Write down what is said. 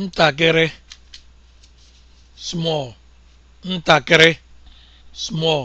ntakịrị small ntakịrị small